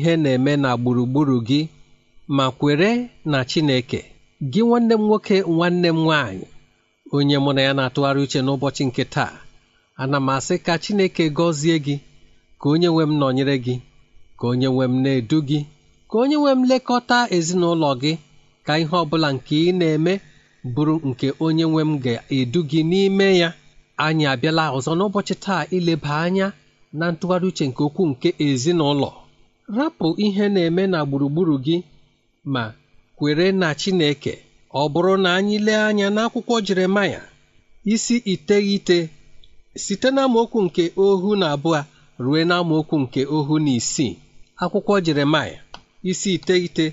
ihe na-eme na gburugburu gị ma kwere na Chineke gị nwanne m nwoke nwanne m nwaanyị onye mụ na ya na-atụgharị uche n'ụbọchị nke taa ana m asị ka Chineke gọzie gị ka onye nwe m nọnyere gị ka onye nwe m na-edu gị ka onye nwe m lekọta ezinụlọ gị ka ihe ọ bụla nke ị na-eme bụrụ nke onye nwe m ga-edu gị n'ime ya anyị abịala ọzọ n'ụbọchị taa ileba anya na ntụgharị uche nke okwu nke ezinụlọ Rapụ ihe na-eme na gburugburu gị ma kwere na Chineke Ọ bụrụ na anyị lee anya n'akwụkwọ Jeremaya isi iteghete site n'amaokwu nke ohu na abụọ ruo n'amaokwu nke ohu na isii akwụkwọ Jeremaya isi iteghete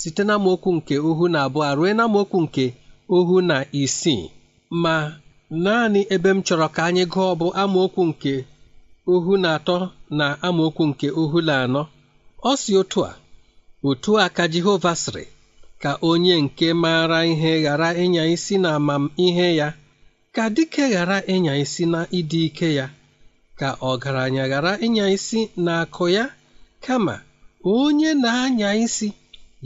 site n'amaokwu nke ohu na abụọ ruo n'amaokwu nke ohu na isii ma naanị ebe m chọrọ ka anyị gụọ bụ amaokwu nke ohu na atọ na amaokwu nke ohu na anọ ọ si otu a otu a ka Jehova sịrị ka onye nke maara ihe ghara ịnya isi na ihe ya ka dike ghara ịnya isi na ịdị ike ya ka ọgaranya ghara ịnya isi na akụ ya kama onye na-anya isi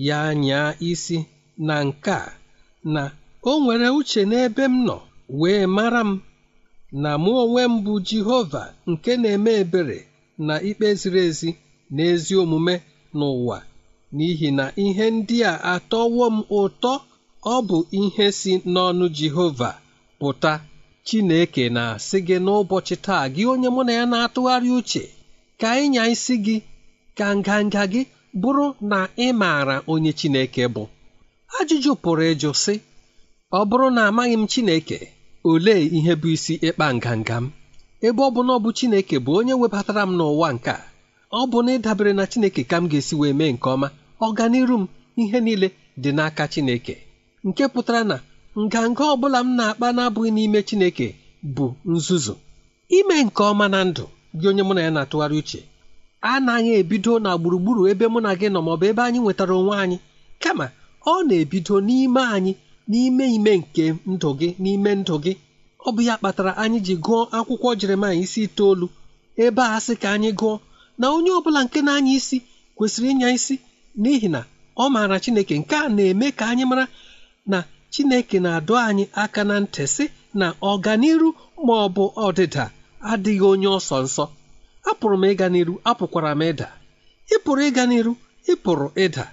ya nyaa isi na nke a na o nwere uche n'ebe m nọ wee mara m na mụ onwe m bụ Jehova nke na-eme ebere na ikpe ziri ezi n'ezi omume n'ụwa n'ihi na ihe ndị a atọwo m ụtọ ọ bụ ihe si n'ọnụ Jehova pụta Chineke na-asị gị n'ụbọchị taa gị onye mụ na ya na-atụgharị uche ka ịnya isi gị ka nganga gị bụrụ na ị maara onye Chineke bụ ajụjụ pụrụ ịjụ sị ọ bụrụ na amaghị m Chineke olee ihe bụ isi ịkpa nganga m ebe ọ bụ na ọ bụ Chineke bụ onye webatara m n'ụwa nke a ọ bụ na ịdabere na Chineke ka m ga-esi wee mee nke ọma ọganiru m ihe niile dị n'aka Chineke nke pụtara na nganga ọ bụla m na-akpa na-abụghị n'ime Chineke bụ nzuzu ime nke ọma na ndụ gị onye mụ na ya na-atụgharị uche anaghị ebido na gburugburu ebe mụ na gị nọ maọbụ ebe anyị nwetara onwe anyị kama ọ na-ebido n'ime anyị n'ime ime nke ndụ gị n'ime ndụ gị ọ bụ ya kpatara anyị ji gụọ akwụkwọ Jeremaya isi itoolu ebe a sị ka anyị gụọ na onye ọ bụla nke na-anya isi kwesịrị ịnya isi n'ihi na ọ maara Chineke nke a na-eme ka anyị mara na Chineke na-adọ anyị aka na ntị sị na ọganiru ma ọ bụ ọdịda adịghị onye ọsọ nsọ apụrụ m ịga n'iru apụkwara m ịda ịpụrụ ịga n'iru ịpụrụ ịda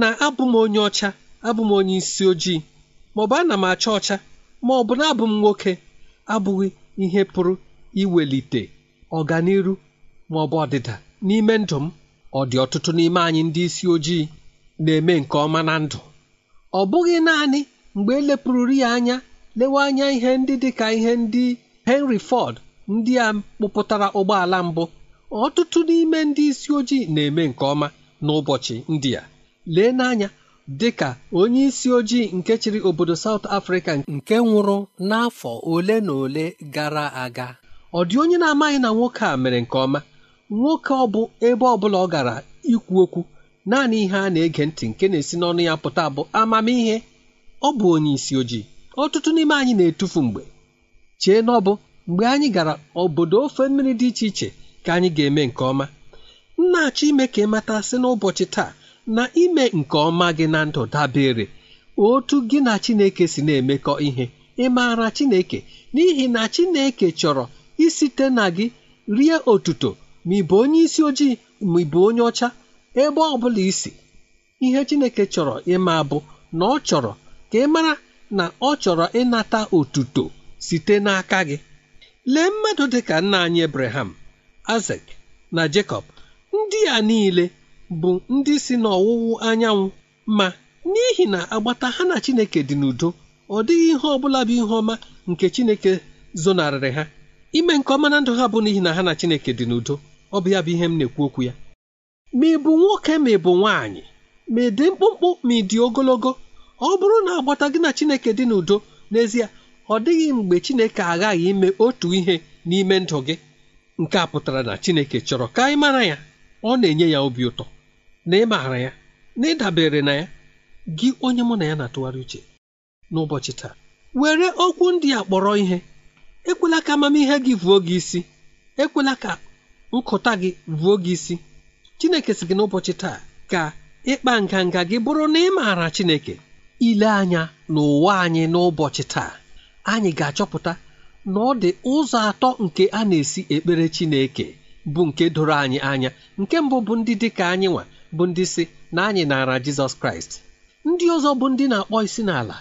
na abụ m onye ọcha abụ m onye isi ojii ma ọ bụ ana m acha ọcha ma ọ bụ na abụ m nwoke abụghị ihe pụrụ iwelite ọganiru ma ọ bụ ọdịda n'ime ndụ m ọ dị ọtụtụ n'ime anyị ndị isi ojii na-eme nke ọma na ndụ ọ bụghị naanị mgbe elepụrụri ya anya lewe anya ihe ndị dị ka ihe ndị Henry Ford ndị a kpụpụtara ụgbọala mbụ ọtụtụ n'ime ndị isi ojii na-eme nke ọma n'ụbọchị ndị a lee n'anya dịka onye isi ojii nke chịrị obodo South Africa nke nwụrụ n'afọ ole na ole gara aga ọ dị onye na-amaghị na nwoke a mere nke ọma nwoke ọ bụ ebe ọbụla ọ gara ikwu okwu naanị ihe a na-ege ntị nke na-esi n'ọnụ ya pụta bụ amamihe ọ bụ onye isi ojii ọtụtụ n'ime anyị na-etufu mgbe chee na bụ mgbe anyị gara obodo ofe mmiri dị iche iche ka anyị ga-eme nke ọma nna-achọ ime ka ịmata mata sị n'ụbọchị taa na ime nke ọma gị na ndụ dabere otu gị na Chineke si na-emekọ ihe ị maara Chineke n'ihi na Chineke chọrọ isite na gị rie otuto ma ị bụ onye isi ojii ma ị bụ onye ọcha ebe ọ bụla isi ihe Chineke chọrọ ịma bụ na ọ chọrọ ka ị mara na ọ chọrọ ịnata otuto site n'aka gị lee mmadụ dị ka nna anyị Abraham azek na Jacob ndị a niile bụ ndị si n'ọwụwụ anyanwụ ma n'ihi na agbata ha na Chineke dị n'udo ọ dịghị ihe ọbụla bụ ihe ọma nke Chineke zonarịrị ha ime nke ọma na ndụ ha bụ n'ihi na ha na Chineke dị n'udo ọ bụ ya bụ ihe m na-ekwu okwu ya ma ị bụ nwoke ma ị bụ nwaanyị ma ị dị mkpụmkpụ ma ị dị ogologo ọ bụrụ na agbata gị na Chineke dị n'udo n'ezie ọ dịghị mgbe Chineke aghaghị ime otu ihe n'ime ndụ gị nke a pụtara na Chineke chọrọ ka ị mara ya ọ na-enye ya obi ụtọ na ị maara ya na ịdabere na ya gị onye mụ na ya na-atụgharị uche n'ụbọchị taa were okwu ndị a kpọrọ ihe ekwela ka amamihe gị vuo gị isi ekwela ka nkụta gị vuo gị isi chineke si gị n'ụbọchị taa ka ịkpa nganga gị bụrụ na ị maara chineke ile anya n'ụwa anyị n'ụbọchị taa anyị ga-achọpụta na ọ dị ụzọ atọ nke a na-esi ekpere chineke bụ nke doro anyị anya nke mbụ bụ ndị dị ka anyị nwa bụ ndị si na anyị naara jizọs kraịst ndị ọzọ bụ ndị na-akpọ isi n'ala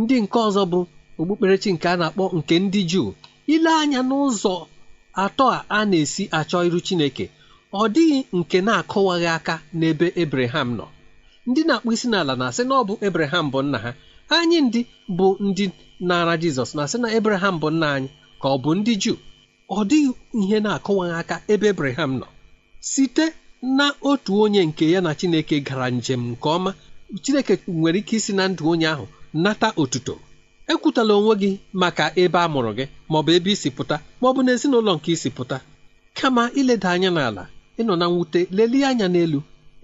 ndị nke ọzọ bụ okpukperechi nke a na-akpọ nke ndị juu ile anya n'ụzọ atọ a na-esi achọ iru Chineke ọ dịghị nke na-akụwaghị aka n'ebe Ebreham nọ ndị na-akpụ isi n'ala na-asị na ọ bụ Ebreham bụ nna ha anyị ndị bụ ndị na-ara Jizọs na-asị na Ebreham bụ nna anyị ka ọ bụ ndị Juu ọ dịghị ihe na-akụwaghị aka ebe Ebreham nọ site na otu onye nke ya na Chineke gara njem nke ọma Chineke nwere ike isi na ndụ onye ahụ nata otuto ekwutala onwe gị maka ebe a mụrụ gị maọbụ ebe isi pụta maọbụ na ezinụlọ nke isi pụta kama ileda anya n'ala ịnọ na mwute lelie anya n'elu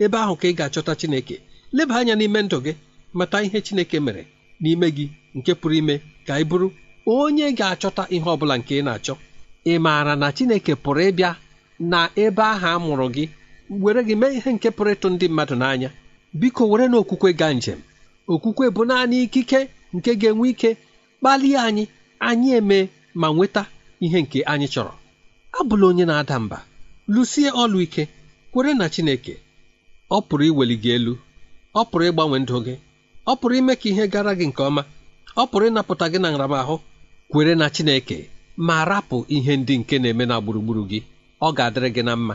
ebe ahụ ka ị ga-achọta Chineke leba anya n'ime ndụ gị mata ihe Chineke mere n'ime gị nke pụrụ ime ka ị bụrụ onye ga-achọta ihe ọ bụla nke ị na-achọ ị maara na Chineke pụrụ ịbịa na ebe ahụ a mụrụ gị were gị mee ihe nke pụrụ ịtụ ndị mmadụ n'anya biko were na okwukwe gaa njem okwukwe bụ naanị ikike nke ga-enwe ike kpalie anyị anyị eme ma nweta ihe nke anyị chọrọ abụla onye na-ada mba lụsie ọlụ ike kwere na Chineke ọ pụrụ iweli gị elu ọ pụrụ ịgbanwe ndụ gị ọ pụrụ ime ka ihe gara gị nke ọma ọ pụrụ ịnapụta gị na nramahụ kwere na Chineke ma rapụ ihe ndị nke na-eme na gburugburu gị ọ ga-adịrị gị na mma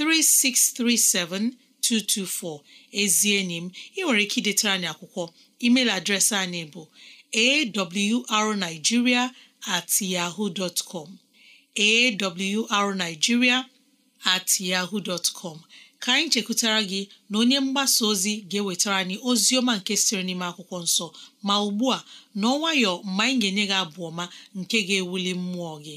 3637224 ezi enyi m ị nwere ike idetara anyị akwụkwọ email adreesị anyị bụ arigiria at yaho at yahoo ka anyị chekwutara gị na onye mgbasa ozi ga-ewetara anyị ozi ọma nke sịrị n'ime akwụkwọ nsọ ma ugbu a n'ọnwayọ mgbe anyị ga-enye gị abụ ọma nke ga-ewuli mmụọ gị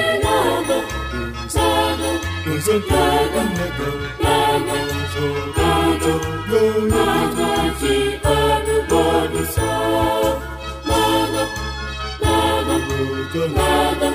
Sentego nego, nego, so, nego, no, no, nagi, anu, bonu, so, nego, nego,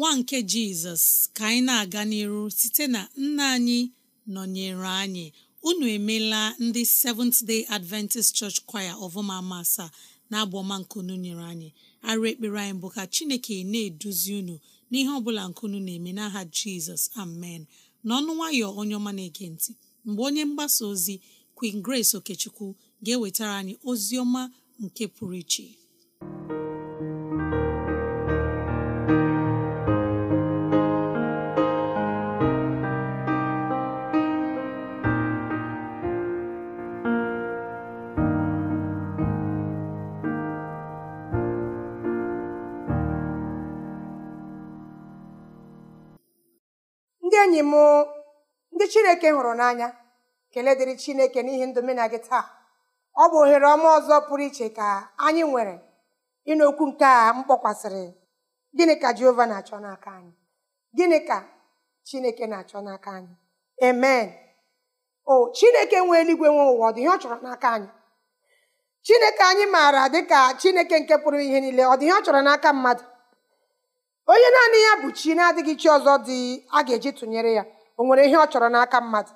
nwa nke jizọs ka anyị na-aga n'iru site na nna anyị nọnyere anyị unu emela ndị Seventh Day Adventist Church Choir ọvụma asaa na abụ ọma nkunu nyere anyị arụ ekpere anyị bụ ka chineke na-eduzi unu n'ihe ọbụla nkunu na-eme n'aha jizọs amen n'ọnụ nwayọ onye ọma na-ege ntị mgbe onye mgbasa ozi Queen Grace Okechukwu ga-ewetara anyị ozi ọma nke pụrụ iche enyi m ndị chineke hụrụ n'anya kelee dịrị chineke n'ihi ndụ mena gị taa ọ bụ ohere ọma ọzọ pụrụ iche ka anyị nwere ịnụ nke a m kpọkwasịrị gịnị ka jehova na-achọ n'aka anyị gịnị ka chineke na-achọ n'aka anyị amen o chineke nwe eluigwe nwe ụwa ọ dị ọ chọrọ n'aka anyị chineke anyị maara dịka chineke nke pụrụ ihe niile ọ dị ọ chọrọ n'aka mmadụ onye naanị ya bụ chi na-adịghị chi ọzọ dị a ga-eji tụnyere ya o nwere ihe ọ chọrọ n'aka mmadụ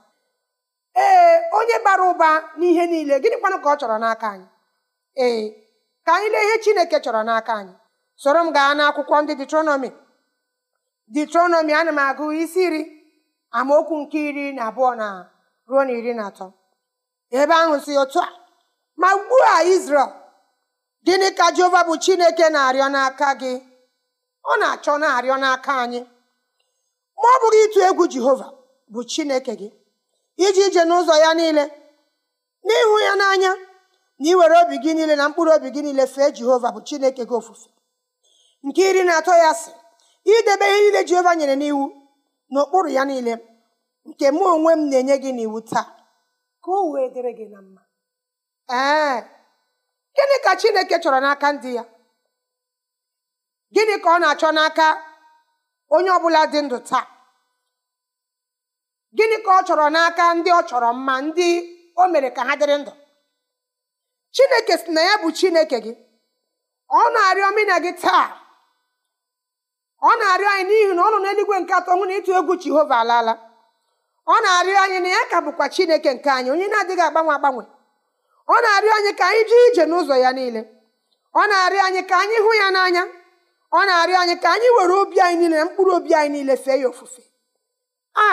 ee onye bara ụba n'ihe niile gịnị kwanụ ka ọ chọrọ n'aka anyị ee ka anyị lee ihe chineke chọrọ n'aka anyị soro m gaa n'akwụkwọ ndị detronọmi detronọmi ana m agụ isi iri amaokwu nke iri na abụọ na ruo na iri na atọ ebe ahụ si otu a ma ugbu a Izrel gịnị ka Jehova bụ Chineke na-arịọ n'aka gị ọ na-achọ na-arịọ n'aka anyị ma ọ bụghị ịtụ egwu jehova bụ chineke gị iji ije n'ụzọ ya niile n'ịhụ ya n'anya na iwere obi gị niile na mkpụrụ obi gị niile fee jehova bụ chineke gị ofufe nke iri na atọ ya sị idebe ihe niile jehova nyere n'iwu n'okpuru ya niile nke mụ onwe m na-enye gị n'iwu taa ka o wee dịrị gị na mma ee gịnị ka chineke chọrọ n'aka ndị ya gịnị ka ọ na-achọ n'aka onye ọbụla dị ndụ taa gịnị ka ọ chọrọ n'aka ndị ọ chọrọ mma ndị o mere ka ha dịrị ndụ chineke si na ya bụ chineke gị ọ na-arịọ mụ gị taa ọ na-arịọ anyị n'ihi na ọ nọ n'eluigwe nke atọ nwụ na ịtụ egwu jehova alaala ọ na-arịọ anyị na ya ka bụkwa chineke nke anyị onye na-adịghị agbanwe agbanwe ọ na-arịọ anyị ka anyị jee ije n'ụzọ ya niile ọ na-arịọ anyị ka anyị hụ ya n'anya ọ na-arịọ anyị ka anyị were obi anyị niile na mkpụrụ obi anyị niile fee ya ofufe a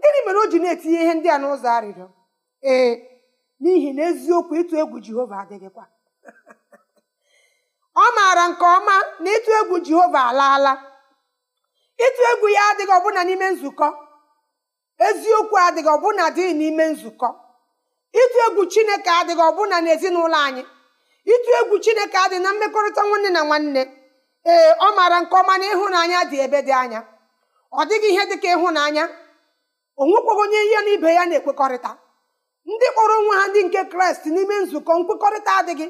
gịnị mere o ji na-etinye ihe ndị a n'ụzọ arịrịọ ee n'ihi na eziokwu ịtụ egwu jehova adịghịkwa ọ maara nke ọma na ịtụ egwu jehova alaala ịtụ egwu ya adịghị ọbụna n'ime nzukọ eziokwu adịghị ọbụna dị n'ime nzukọ ịtụ egwu chineke adịghị ọbụna n'ezinụlọ anyị ịtụ egwu chineke adịghị na mmekọrịta nwanne na nwanne ee ọ maara nke ọma na ịhụnanya dị ebe dị anya ọ dịghị ihe ka ịhụnanya onwekwaghị onye ihe na ibe ya na-ekwekọrịta ndị kpọrọ onwe ha ndị nke kraịst n'ime nzukọ nkwekọrịta adịghị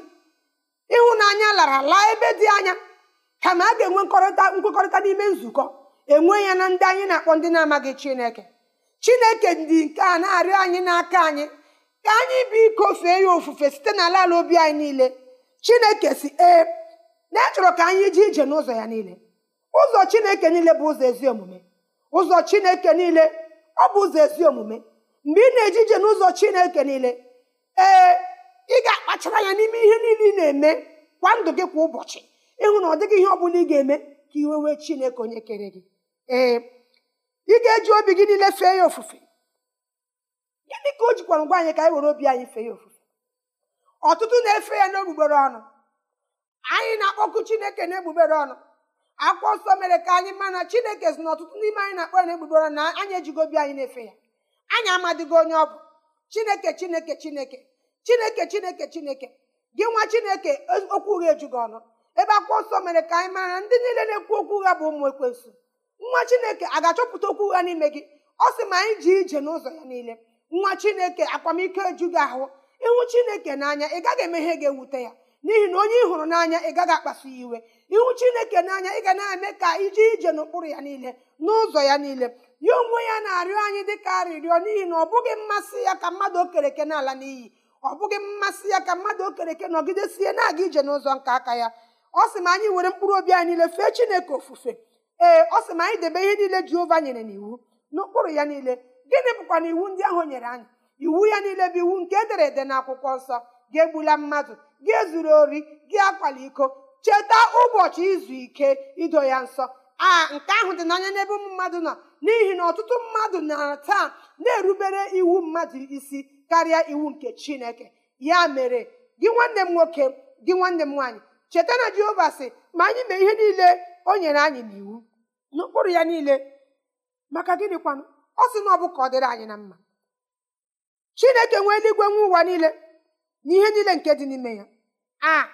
ịhụnanya lara laa ebe dị anya kama a ga-enwe nkwekọrịta n'ime nzukọ enwe ya na ndị anyị na-akpọ ndị na-amaghị chineke chineke dị nke a na-arịọ anyị n'aka anyị ka anyị bụ iko fee ya ofufe site n'ala ala obi anyị niile chineke si ee na e chọrọ ka anyị ji ije n'ụzọ ya niile ụzọ chineke niile bụ ụzọ ezi omume ụzọ chineke niile ọ bụ ụzọ ezi omume mgbe ị na eji ije n'ụzọ chineke niile ee ị ga-akpachara ya n'ime ihe niile ị na-eme kwa ndụ gị kwa ụbọchị ịhụ na ọ dịghị ihe ọ bụla ị ga-eme ka iwe wee chineke onye kere gị ee ị ga-eji obi gị niile fee ya ofufe gịnị ka o jikwa ngwa anyị ka anyị were obi anyị fee ya ofufe ọtụtụ na-efe ya n'ogbugbere ọnụ anyị na-akpọkụ chineke na egbugbere ọnụ akwụkwọ nsọ mere ka anyị mana chineke si na ọtụtụ n'ime anyị na akpọ na egbugbere ọnụ na anyị ejigo obi anyị na-efe ya anyị amadịgo onye ọ bụ chineke chineke chineke chineke chineke chineke gị nwa chineke okwu ụgha ejugo ọnụ ebe akwụkwọ nsọ mere ka anyị mara ndị niile na-ekwu okwu ụgha bụ ụmụ ekwensu nwa chineke a ga-achọpụta okwu ụgha n'ime gị ọ sị ma anyị ji ije n'ụzọ ya niile nwa chineke akwamiko ejugị ahụ ịhụ chineke n'anya ị gaghị eme ga-ewute ya n'ihi na onye ị hụrụ n'anya ị gaghị akpasu ya iwe ihu chineke n'anya ị ga na-eme ka ije ije n'ụkpụrụ ya niile n'ụzọ ya niile ya onwe ya na-arịọ anyị dị ka arịrịọ n'ihi na ọ bụghị mmasị ya ka mmadụ okereke n'ala n'iyi ọ bụghị mmasị ya ka mmadụ okereke nọgidesie na-aga ije n'ụzọ nke aka ya ọ sị ma anyị were mkpụrụ obi anyị niile fee chineke ofufe ee ọ sị ma anyị debe ihe niile jehova nyere n'iwu n'ụkpụrụ ya niile gịnị bụkwa na iwu ndị ahụ nyere anyị iwu ya niile bụ iwu nke edere ede n'akwụkwọ nsọ gị egbula mmadụ gị ezuru ori gị akwala iko cheta ụbọchị izu ike ido ya nsọ a nke ahụ dị n'anya n'ebe ụmụ mmadụ nọ n'ihi na ọtụtụ mmadụ na taa na-erubere iwu mmadụ isi karịa iwu nke chineke ya mere gị nwanne m nwoke gị nwanne m nwaanyị cheta na jehova sị ma anyị mee ihe niile o nyere anyị n'iwu n'okpuru ya niile maka gịnịkwanụ ọ sị na ọ bụ ka ọ dịrị anyị na mma chineke nwee eluigwe nwe ụwa niile n'ihe niile nke dị n'ime ya a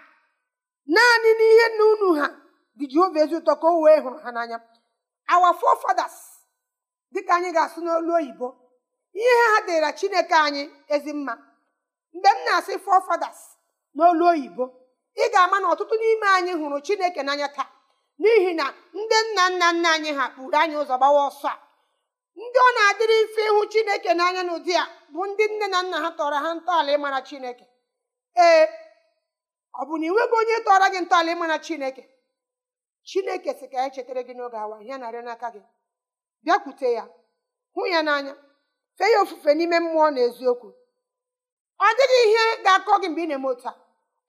naanị n'ihe nna unu ha dị jehova ezi ụtọ ka o wee hụrụ ha n'anya awa forefathers dịka anyị ga-asụ n'olu oyibo ihe ha dịra chineke anyị ezi mma mgbe m na-asị forefathers n'olu oyibo ị ga-ama na ọtụtụ n'ime anyị hụrụ chineke n'anya taa n'ihi na ndị nna nna nna anyị ha kpụrụ anyị ụzọ gbawa ọsọ a ndị ọ na-adịrị mfe ịhụ chineke n'anya n'ụdị a bụ ndị nne na nna ha tọrọ ha ntọala ịmara chineke ee ọ bụ na ịnweghị onye tọrọ gị ntọala ịma na chineke chineke si ka ya e chetara gị n'oge awa ihe narị n'aka gị bịakwute ya hụ ya n'anya fee ya ofufe n'ime mmụọ na eziokwu ọ dịghị ihe ga-akọ gị mgbe ị na-eme otu a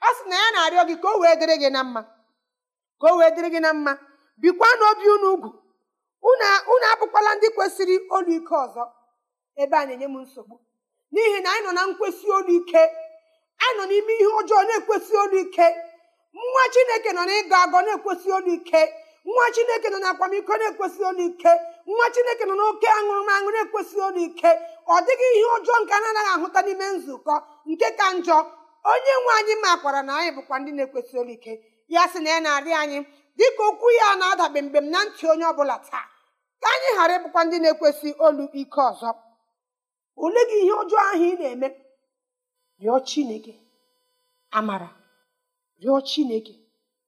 ọ sị na ya na-arịọ gị ka o wee dịrị gị na mma ka o wee dịrị gị na mma bikwa n'obi unu ugwu unu abụkwala ndị kwesịrị olu ike ọzọ ebe a na-enye m nsogbu n'ihi na anyị nọ na nkwesị olu ike anyị nọ n'ime ihe ọjọọ na-ekwesị olu ike nwa chineke nọ n'ịgọ agọ na-ekwesị olu ike nwa chineke nọ n'akwamiko na-ekwesị olu ike nwa chineke nọ n'oke aṅụrụmaṅụ na-ekwesị olu ike ọ dịghị ihe ọjọọ nke a na-anaghị ahụta n'ime nzukọ nke ka njọ onye nwe anyị makwara na anyị bụkwa ndị na-ekwesị olu ike ya sị na ya na-arị anyị dịka okwu ya na-adabe m na ntị onye ọbụla taa ka anyị ghara ịbụkwa ndị na-ekwesị olu ike ọzọ ole gị ihe ọjọọ ahụ ị na-eme rịọ chineke amara rịọ chineke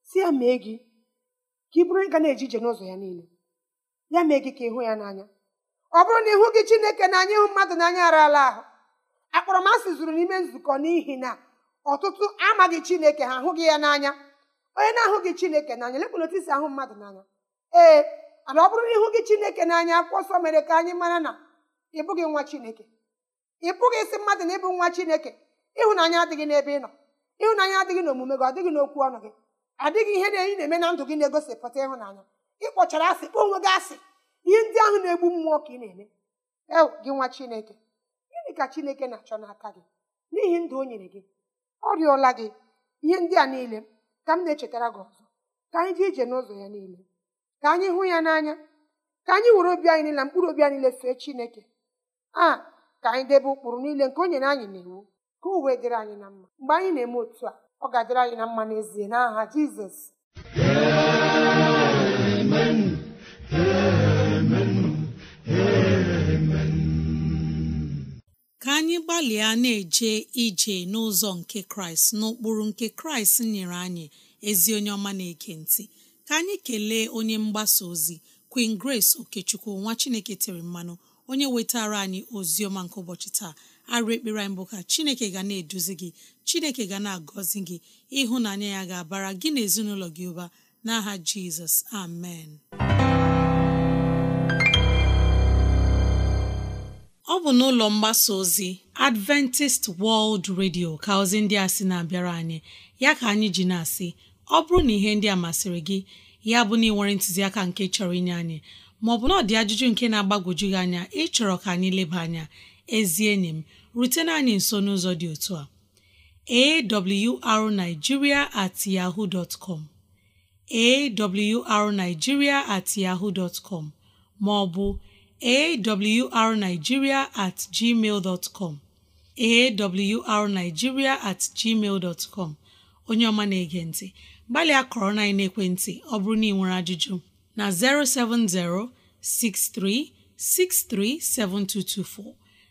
si ya mee gị ka ị bụrụ ịga na-eje ije n'ụzọ ya niile ya mee gị ka ịhụ ya n'anya ọ bụrụ na ịhụ gị chineke n'anya ịhụ mmadụ n'anya ara ahụ akpọrọmasị zuru n'ime nzukọ n'ihi na ọtụtụ amaghị chineke ha ahụghị ya n'anya onye na-ahụghị chineke n'anya lekwana otu isi ahụ mmadụ n'anya ee ana ọ bụrụ na ịhụ gị chineke n'anya akwụkwọ nsọ mere ka anyị mara na ị nwa chineke ị pụghị isi mmadụ na ịbụ nwa chineke ịhụnanya adịghị n'ebe ị nọ ịhụnanya adịghị n'omume gị ọ dịghị n'okwu ọnụ gị adịghị ihe na-eyi na-eme na ndụ gị na-egosipụta ịhụnanya ịkpọchara asị kpọọ onwe gị asị ihe ndị ahụ na-egbu mmụọ ka ị na-eme ew gị nwa chineke gịnị ka chineke na-achọ n'aka gị n'ihi ndụ o nyere gị ọ rịọla gị ihe ndị a niile ka m na-echetara gị ọzọ ka anyị dị ije n'ụzọ ya niile ka anyị hụ ya n'anya ka anyị were obi anyị niile na mkpụrụ obi anyị niile fee chineke a ka anyị debe ụkpụrụ niile nke o nyere anyị iwu ka uwe dịrị anyị na mma mgbe anyị na-eme otu a ọ ga-adịrị anyị na mma n'ezie n'aha jizọs amen amen amen ka anyị gbalịa na-eje ije n'ụzọ nke kraịst n'ụkpụrụ nke kraịst nyere anyị ezi onye ọma na-eke ntị ka anyị kelee onye mgbasa ozi Queen Grace Okechukwu nwa Chineke tere mmanụ onye wetara anyị ozi ọma nke ụbọchị taa arụ ekpere anyị bụ ka chineke ga na-eduzi gị chineke ga na-agọzi gị ịhụnanya ya ga-abara gị na ezinụlọ gị ụba n'aha jizọs amen ọ bụ n'ụlọ mgbasa ozi adventist world radio ka ozi ndị a sị na-abịara anyị ya ka anyị ji na-asị ọ bụrụ na ihe ndị a masịrị gị ya bụ na ị nwere ntụziaka nke chọrọ inye anyị maọbụ na ọ dị ajụjụ nke na-agbagwoju gị anya ịchọrọ ka anyị leba anya ezi enyi m rutena anyị nso n'ụzọ dị otu a awrnigeria at yahoo dot com at yahoo dot com ma ọ bụ awrnigeria at gmail dot com awrnigeria at gmail dot com onye ọma na-ege ntị gbalịa kọrọ na ekwentị ọ bụrụ na ị nwere ajụjụ na 070 63 7224